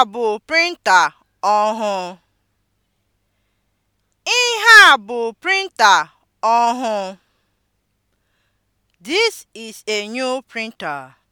a bụ printa ọhụụ. Ihe a bụ printa ọhụụ. This is a new printer.